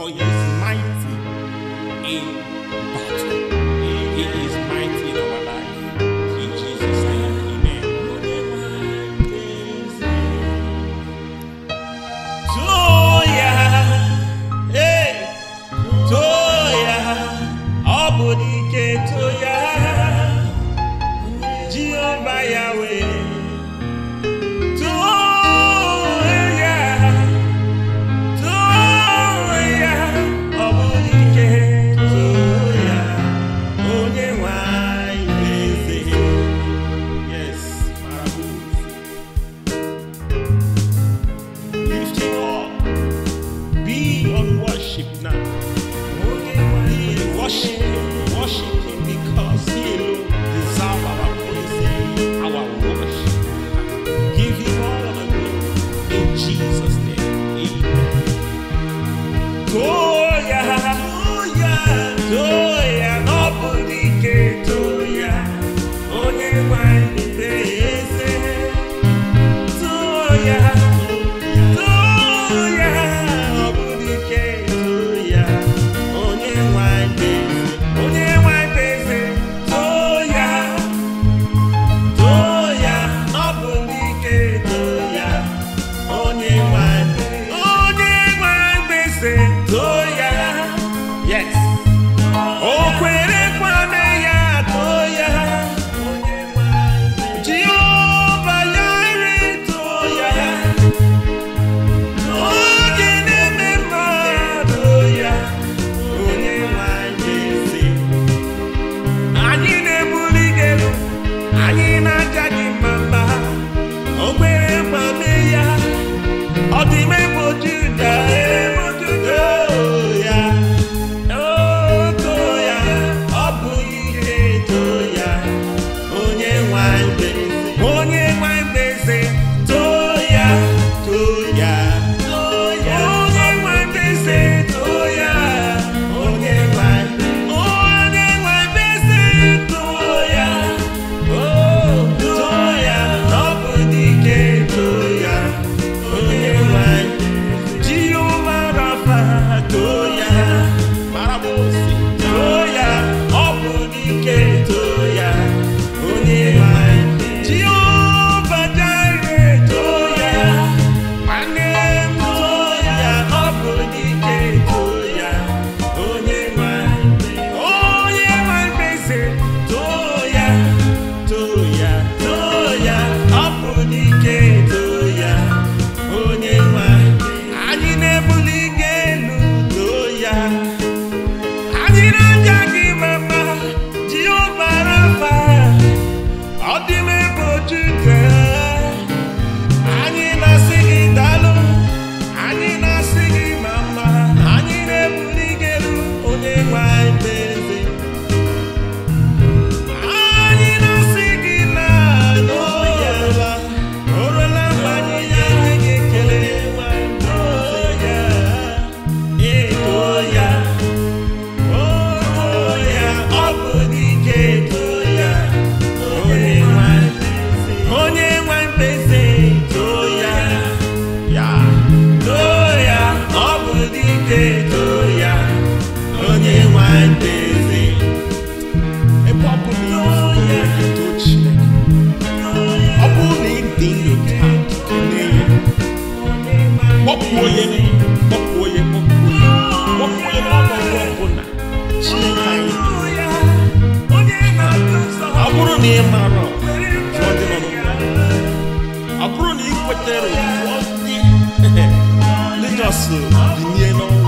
for he is mighty in battle. He is mighty in our life. In Jesus' name, amen. Toya, hey, Toya, Obodike Toya, Tiranja Let us na ị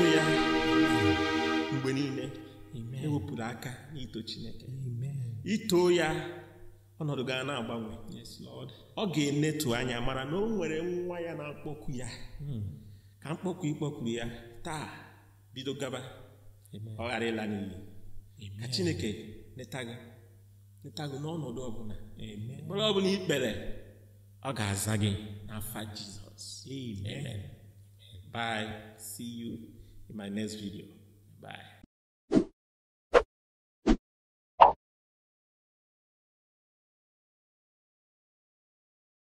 n'ịtụ ya mgbe niile ewepụrụ aka n'ito Chineke ito ya ọnọdụ gaa na-agbanwe ọ ga-enetu anya mara na o nwere nwa ya na-akpọku ya hmm. ka mkpọku ịkpọkuru ya taa bido gaba ọ ghara ịla n'iyi ka Chineke neta gị gị n'ọnọdụ ọbụla mkpụrụ ọbụla ikpere ọ ga-aza gị n'afa Jizọs bye in my next video. Bye.